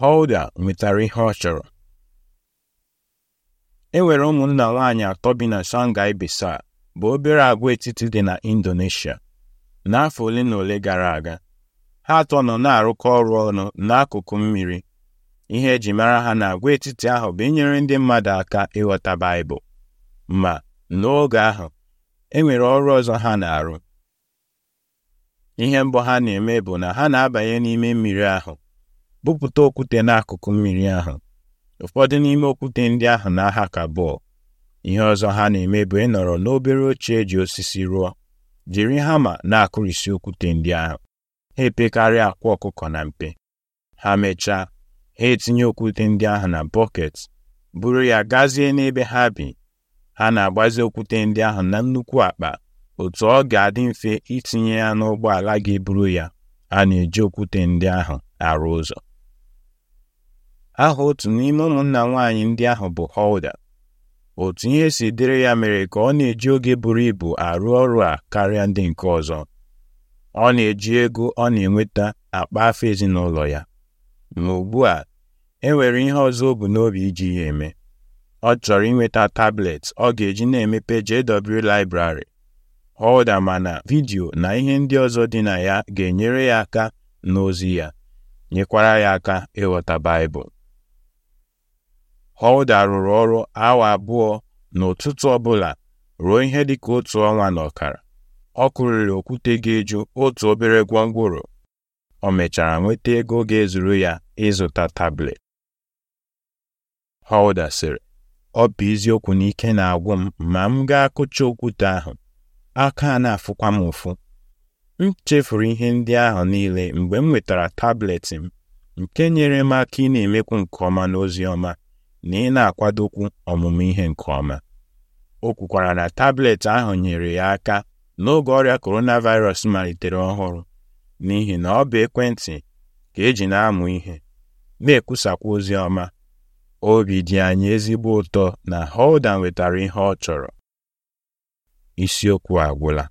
Holder nwetara ihe ọ chọrọ e nwere ụmụnna nwaanyị atọ bi na Shanghai bụ obere agwaetiti dị na Indonesia n'afọ ole na ole gara aga ha atọ nọ na-arụkọ ọrụ ọnụ n'akụkụ mmiri ihe eji mara ha na agwaetiti ahụ bụ inyere ndị mmadụ aka ịghọta Baịbụl ma n'oge ahụ e nwere ọrụ ọzọ ha na-arụ ihe mbọ ha na-eme bụ na ha na-abanye n'ime mmiri ahụ bupụta okwute n'akụkụ mmiri ahụ ụfọdụ n'ime okwute ndị ahụ na-aha ka bọọlụ ihe ọzọ ha na-eme bụ ịnọrọ n'obere oche eji osisi rụọ jiri hama na-akụrịsị okwute ndị ahụ ha epekarịa akwa ọkụkọ na mpe ha mechaa ha etinye okwute ndị ahụ na bọket buru ya gazie n'ebe ha bi ha na-agbazi okwute ndị ahụ na nnukwu akpa otu ọ ga-adị mfe itinye ya n'ụgbọala ga-eburu ya a na-eji okwute ndị ahụ arụ ụzọ aha otu n'ime ụmụnna nwaanyị ndị ahụ bụ Hulda otu ihe si dịrị ya mere ka ọ na-eji oge buru ibu arụ ọrụ a karịa ndị nke ọzọ ọ na-eji ego ọ na-enweta akpa afọ ezinụlọ ya ma ugbu a e nwere ihe ọzọ o bu n'obi iji ya eme ọ chọrọ inweta tablet ọ ga-eji na-emepe JW Library Hulda mana vidiyo na ihe ndị ọzọ dị na ya ga-enyere ya aka n'ozi ya nyekwara ya aka ịghọta Baịbụl Holder rụrụ ọrụ awa abụọ n'ụtụtụ ọbụla ruo ihe dịka otu ọnwa na ọkara. Ọ kụriri okwute ga-eju otu obere gwongworo. O mechara nweta ego ga-ezuru ya ịzụta tablet. Holder sịrị, ọ bụ eziokwu n'ike na-agwụ m ma m gaa kụcha okwute ahụ aka a na-afụkwa m ụfụ m chefuru ihe ndị ahụ niile mgbe m nwetara tablet m nke nyere m aka ị na-emekwu nke ọma n'ozi ọma na ị na-akwadokwu ọmụmụ ihe nke ọma o kwukwara na tablet ahụ nyere ya aka n'oge ọrịa coronavirus malitere ọhụrụ n'ihi na ọ bụ ekwentị ka eji na-amụ ihe na-ekwusakwa ozi ọma obi dị anyị ezigbo ụtọ na Holden nwetara ihe ọ chọrọ isiokwu agwụla